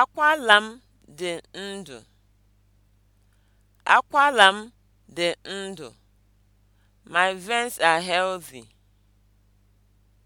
Akwala m dị ndụ. Akwala m dị ndụ. My veins are healthy.